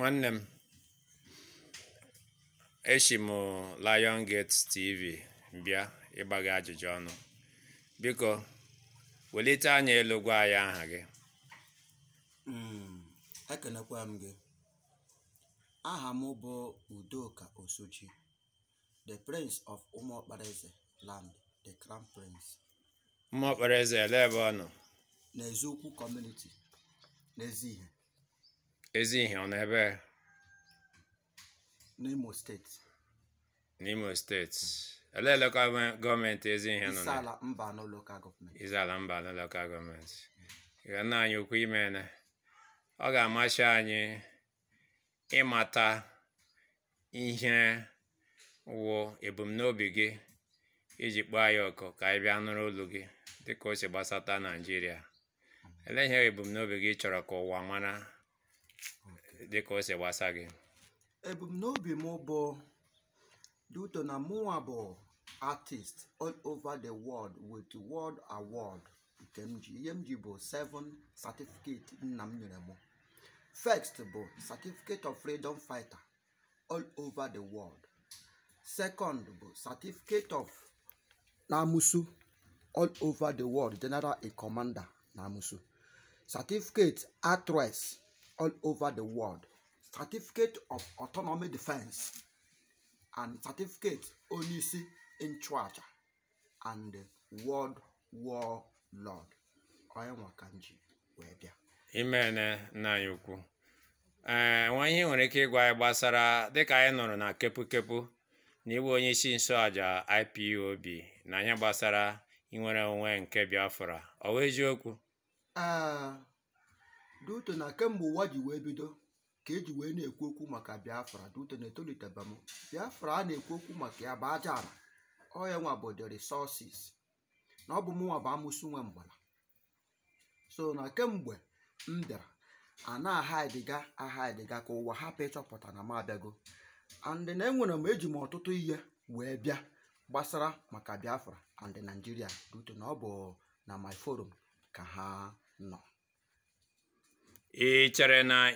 nwanne m echi m Lion Gate TV mbịa ịgba gị ajụjụ ọnụ biko welite anya elu gwa anyị aha gị hmm, ekenekwa m gị aha m bụ Udoka Osochi the prince of Umuokparaeze land the crown prince Umuokparaeze ele ebe ọ nọ n'eziokwu community n'ezi ihe ezi ihe ọ n'ebe n'Imo steeti n'Imo steeti elee lokal gọọmenti ezi ihe nọ Isiala Mbano lokal gọọmenti Isiala Mbano lokal gọọmenti ga nna anyị ukwu ime ne ọ ga-amasị anyị ịmata ihe wụ ebumnobi gị iji kpọọ anyị ọkụ ka anyị bịa nụrụ olu gị dịka o si gbasata Naijiria mm-hmm. ele ihe ebumnobi gị chọrọ ka ụwa mara dịka o si gbasa gị ebumnobi m bụ duto na mụnwa bụ artist all over the world with world award nke m ji ihe m ji bụ 7 certificate nna m nyere m first bụ certificate of freedom fighter all over the world second bụ certificate of namusu all over the world general in commander namusu certificate actress all over the world certificate of autonomy defense and certificate onyeisi nchụaja and world war lord onye nwa ka wee bịa imene nna eh, anyị ukwu ee nwa ihe nwere ike ịgwa anyị gbasara dịka anyị nụrụ na kepụkepụ na n'iwe onye isi nsoaja IPOB na anyị gbasara inwere onwe nke Biafra ọ bụ eziokwu eh, Duterte na kemgbe ụwa ji wee bido ka eji wee na-ekwu okwu maka Biafra Duterte na-etoliteba m Biafra a na-ekwu okwu maka ya bụ aja ala ọ ya nwa bụ the resources na ọ bụ mụnwa bụ amụsụ nwe mgbala so na kemgbe m bịara a na-aha ediga aha ediga ka ụwa hapụ ịchọpụta na m abịago and na enwere m eji m ọtụtụ ihe wee bịa gbasara maka Biafra and Nigeria Duterte na ọ bụ na my forum ka ha nọ ị chere na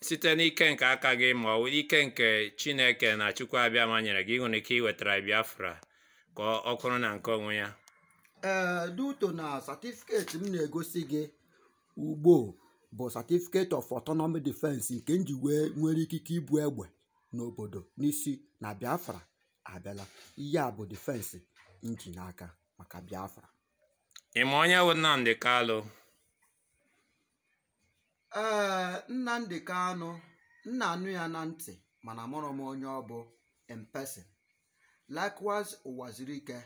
site n'ike nke aka gị ma ọ ike nke Chineke na Chukwu abịama nyere gị nwere ike iwetara Biafra ka ọ kụrụ na nke onwe ya ee eh, duto na satifiketi m na-egosi gị ugbo bụ satifiketi of autonomy defense nke nji nwere ikike ibu egbe n'obodo n'isi na Biafra abịala ihe a bụ defense nji n'aka maka Biafra ị ma onye bụ nnamdị Kalụ ee Nnamdi m nna anụ ya na ntị mana mụrụ m onye ọ bụ in person likewise Ụwazirike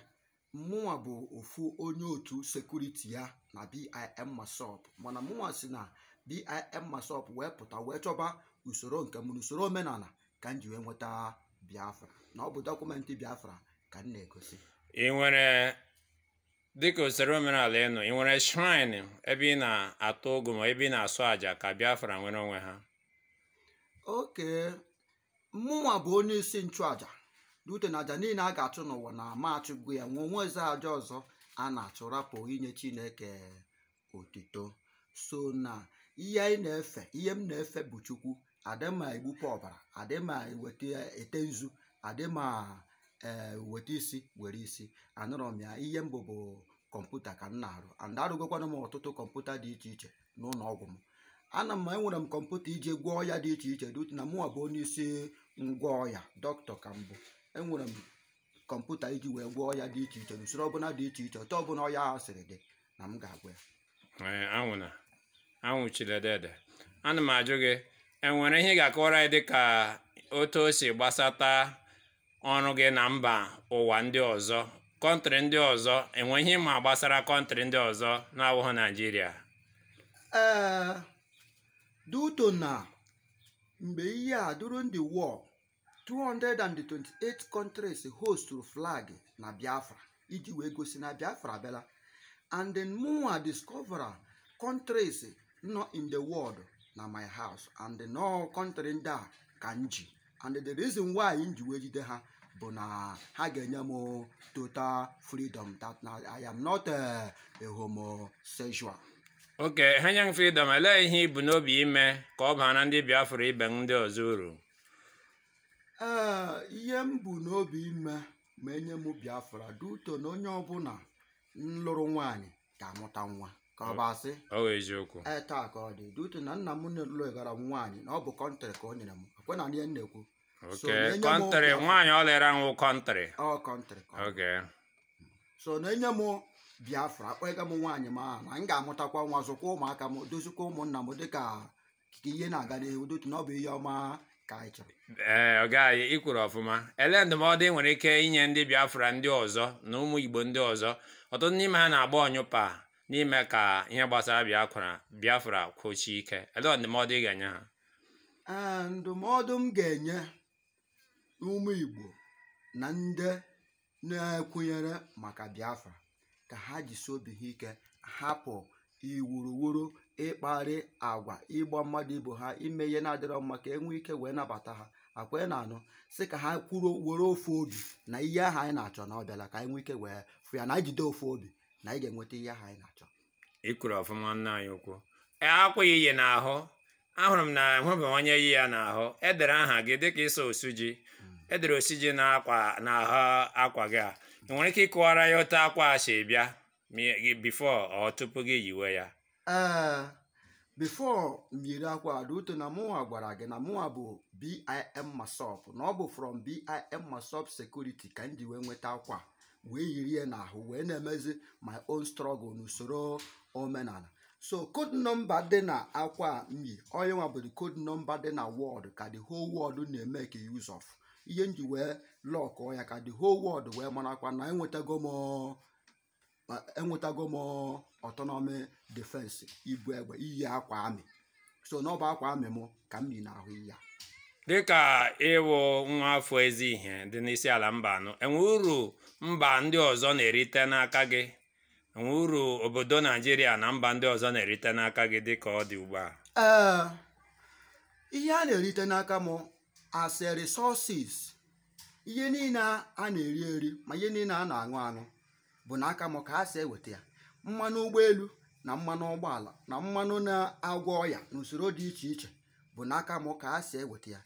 mụnwa bụ ofu onye otu sekuriti ya na BIM Masop mana mụnwa si na BIM Masop wee pụta wee chọba usoro nke m usoro omenala ka m ji wee nweta Biafra na ọ bụ dọkụmentị Biafra ka m na-egosi dịka usoro omenala ịnụ ị nwere shrine ebe ị na-atụ ụgụ ma ebe ị na-asụ àjà ka Biafra nwere onwe ha oke mmụnwa bụ onye isi nchụàjà dute na àjà niile a ga-achụ n'ụwa na amachụgo ya nwe onwe eze àjà ọzọ a na-achụ rapụ inye Chineke otito so na ihe anyị na-efe ihe m na-efe bụ Chukwu adịma egbupụ ọbara adịma eweta ete nzu adịma ee eh, weta isi were isi anụrọ m ya ihe mbụ bụ kọmputa ka m na-arụ and arụgokwana m ọtụtụ kọmputa dị iche iche n'ụlọ ọgwụ m ana m enwere m kọmputa iji gwọọ ya dị iche iche dut na nwa bụ onye isi ngwa ọya dọkịta ka mbụ enwere m kọmputa iji wee gwọọ ya dị iche iche usoro ọbụla dị iche iche ọtọ ọbụla ọya ahụ dị na m ga-agwa ya eh, anwụna ana m ajụ gị enwere ihe ga-akọwara anyị dịka otu o si gbasata ọrụ gị na mba ụwa ndị ọzọ kọntrị ndị ọzọ enweghị ma gbasara kọntrị ndị ọzọ na-awụghị naijiria eh, duto na mgbe ihe a during ndị war 228 countries hostụrụ flag na biafra iji wee gosi na biafra abịala and then mụnwa discover countries nọ in the world na my house and then kọntrị ndị a ka m ji and the reason why m ji wee ha bụ na ha ga-enye m total freedom that I am not a homosexual oke ha m freedom elee ihe ibu n'obi ime ka ọ na ndị Biafra ibe ndị ọzọ uru eh, ihe m bụ n'obi ime ma enye m Biafra duto na onye ọbụla nlụrụ lụrụ nwaanyị ga-amụta nwa ka ọ bụ asị eziokwu ee ka ọ dị dị utu na nna m nụlụ gara nwaanyị na ọ bụ kọntrị ka o nyere m ekwe na ihe na-ekwu kọntrị nwaanyị ọ lere nwụ kọntrị ọ kọntrị so na enye m biafra akpọghịga m nwaanyị m na m ga-amụtakwa nwa zụkwa ụmụaka m dozikwa ụmụnna m dịka ihe na-aga n'ihu dịotu na ọ bụ ihe ọma ka anyị chọrọ ee ọ gaghị ọfụma ele ndụmọdụ ị nwere ike inye ndị biafra ndị ọzọ na ụmụ igbo ndị ọzọ ọtụtụ n'ime ha na-agba ọnyụpa n'ime ka ihe gbasara Biafra Biafra kwochie ike ele ndụmọdụ ị ga-enye ha ndụmọdụ m ga-enye ụmụ Igbo na ndị na-ekwunyere maka Biafra ka ha jisi obi ha ike hapụ iwuruwuru ịkparị agwa ịgba mmadụ ibu ha ime ihe na-adịrọ mma ka enwee ike wee nabata ha akwa na anụ si ka ha kwuru were ofu obi na ihe ahụ anyị na-achọ na ọ bịala ka anyị nwee ike wee fụ ya na jide ofu obi na ị ga-enweta ihe ahụ anyị na-achọ ikwuru ọfụma nna anyị ukwu e, akwụ ya ihe n'ahụ ahụrụ m na nhụbawanye iyi ya n'ahụ edere aha gị dịka ịsa osu ji edere osu ji na n'ahụ akwa gị a ị nwere ike ịkụwara ya otu akwa a si bịa bifo ọ tupu gị yiwe ya ah, ee bifo m akwa adauto na mụnwa gwara gị na mụnwa bụ BIM Masop na ọ bụ from BIM Masop Security ka m ji wee nweta akwa wee yiri ya n'ahụ wee na-emezi my own struggle n'usoro omenala so code nọmba dị na akwa myi onye nwa bụ code nọmba dị na wọd ka the whole world na-eme ka e use of ihe m ji wee ọ ya ka the whole world wee marakwa na enwetago m enwetago m defense ibu egbe iyi akwa amị so n'ọba akwa amị m ka m yi n'ahụ ya dịka ịwụ nwa afọ ezi ihe dị n'isi ala mba anọ enwe uru mba ndị ọzọ na-erite n'aka gị enwe uru obodo naijiria na mba ndị ọzọ na-erite n'aka gị dịka ọ dị ugbu a eh, ihe a na-erite n'aka m as a resources ihe niile a na-eri eri ma ihe niile a na-aṅụ aṅụ bụ n'aka m ka a si eweta ya mmanụ ụgbọelu na mmanụ ụgbọala na mmanụ na-agwọ ọya na usoro dị iche iche bụ n'aka m ka a si eweta ya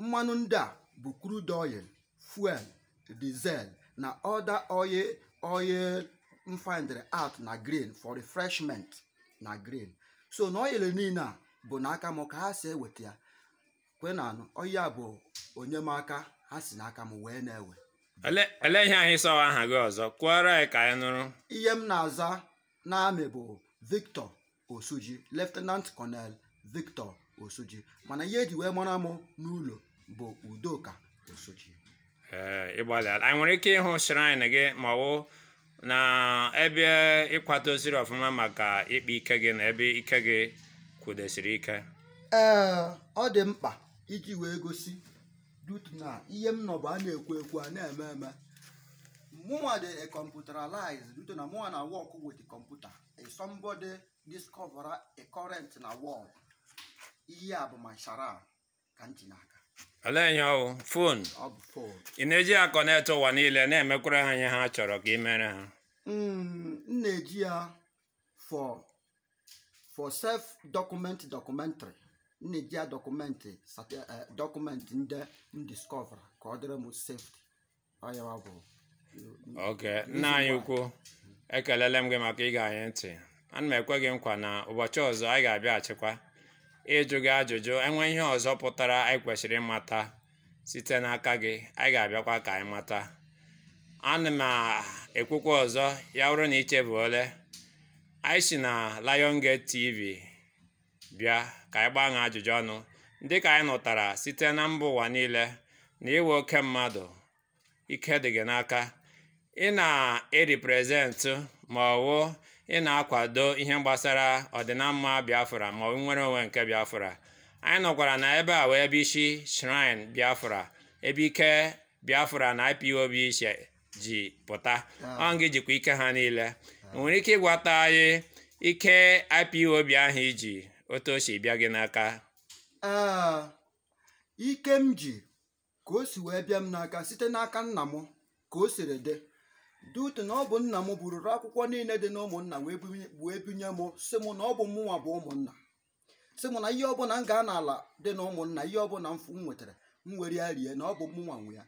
mmanụ ndị a bụ crude oil fuel diesel na other oil oil mfindry out na grain for refreshment na grain so na oil niile a bụ n'aka m ka ha si eweta ya kwe na anụ oya bụ onyemaka ha si n'aka m wee na-ewe ele ihe anyị sọwa aha gị ọzọ kwụọrọ anyị ka anyị nụrụ ihe m na-aza n'amị bụ Victor Osuji Lieutenant Colonel Victor Osuji mana ihe eji wee mara mụ n'ụlọ bụ Udoka Osuji ịgbalịala anyị nwere ike ịhụ shrine gị ma ọ na ebe ịkwadoziri ọfụma maka ịkpa ike gị na ebe ike gị kwudosiri ike ee ọ dị mkpa iji wee gosi dutu na ihe m nọ bụ a na-ekwu ekwu a na-eme eme mụnwa dị computerized dutu na mụnwa na work with computer somebody discover a current na world ihe a bụ ka olee ihe ọwụ fon ị na-eji ya kọnetị ụwa niile na-emekwara ha ihe ha chọrọ ka ị mere ha hmm, m na-eji for document documentary na-eji ya eh, ndị ka ọ dịrị m safety ọyawa bụ oke nna anyị ukwu ekelele m gị maka ịga anyị ntị ana m ekwe gị nkwa na ụbọchị ọzọ anyị ga abịa achịkwa. ịjụ gị ajụjụ enwe ihe ọzọ pụtara anyị kwesịrị ịmata site n'aka gị anyị ga-abịakwa ka anyị mata ana m ekwukwa ọzọ ya rụrụ na ole anyị si na liongate TV bịa ka anyị gbaa ajụjụ ọnụ dị ka anyị nụtara site na mba ụwa niile na iwe oke mmadụ ike dị gị n'aka ị na-eriprezentụ ma ọwụ ị na-akwado ihe gbasara ọdịnamma Biafra ma ọ nwere onwe nke Biafra anyị nọkwara na ebe a wee ebe isi shrine Biafra ebe ike Biafra na IPOB ji pụta ah. ọ nga jikwa ike ha niile nwere ike ịgwata anyị ike IPOB ahụ iji otu bịa gị n'aka ah, ike m ji ka o si wee bịa m n'aka site n'aka nna m ka o siri dị dute na ọ bụ nna m bururu akwụkwọ niile dị na ụmụnna wee binye m sị m na ọ bụ mụnwa bụ ụmụnna sị m na ihe ọbụla m gaa n'ala ala dị na ụmụnna ihe ọbụla m nwetara m were ya rie na ọ bụ mụnwa nwe ya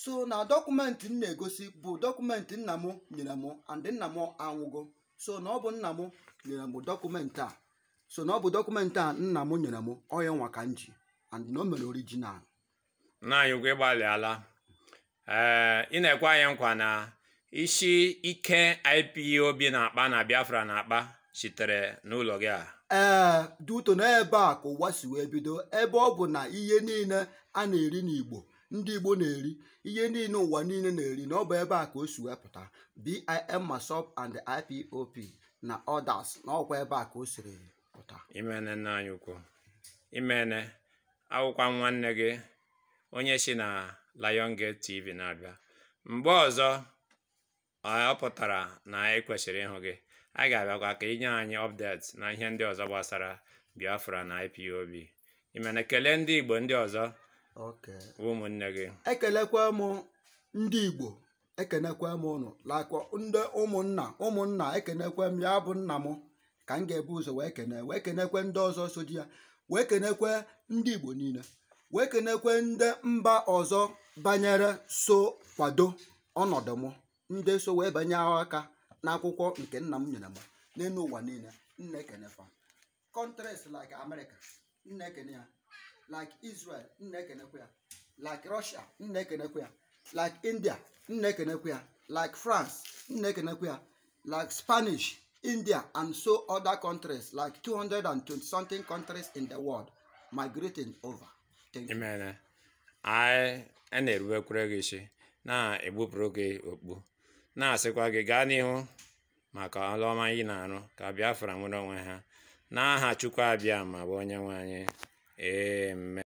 so na dọkụmentị m na-egosi bụ dọkụmentị nna m nyere m andị nna m anwụgo so na ọ bụ nna m nyere m dọkụmentị a so na ọ bụ dọkụmentị a nna m nyere m ọya nwa ka m ji andị na o mere orijinal na anyị ụgwọ ịgbalịala ee ị na-ekwe nkwa na isi ike IPOB na-akpa na Biafra na-akpa sitere n'ụlọ gị a ee eh, duto n'ebe a ka ụwa si wee bido ebe ọ bụ na ihe niile a na-eri n'Igbo ndị Igbo na-eri ihe niile ụwa niile na-eri na ọ ebe a ka o si pụta BIM Masop and ipop na others na ọkwa ebe a ka o siri pụta imene nna anyị ukwu imene akwụkwọ nwanne gị onye si na Lion Gate TV na-abịa mgbe ọzọ ọ pụtara na anyị kwesịrị ịhụ gị anyị ga-abịakwa ka inye anyị ọpdeti na ihe ndị ọzọ gbasara biafra na ipob ime na kelee ndị igbo ndị ọzọ ụmụnne gị ekelekwa m ndị igbo ekenekwa m ụnụ lakwa ndị ụmụnna ụmụnna ekenekwa m ya bụ nna m ka m ga-ebu ụzọ wee kene wee kenekwe ndị ọzọ so di ya wee kenekwe ndị igbo niile wee kenekwe ndị mba ọzọ banyere so kwado ọnọdụ m ndị so wee banye aka n'akwụkwọ nke nna m nyere m n'elu ụwa niile nna ekene fa countries like America nna ya like Israel nna ekenekwe ya like Russia nna ekenekwe ya like India nna ekenekwe ya like France nna ekenekwe ya like Spanish India and so other countries like 220 something countries in the world migrating over. Imene, anyị a na-erubekwuru gị isi na-egbupụrụ gị okpu na-asịkwa gị gaa n'ihu maka ọrụ ọma ị na-arụ ka Biafra nwere onwe ha n'aha Chukwu abịa ma bụ onye nwe anyị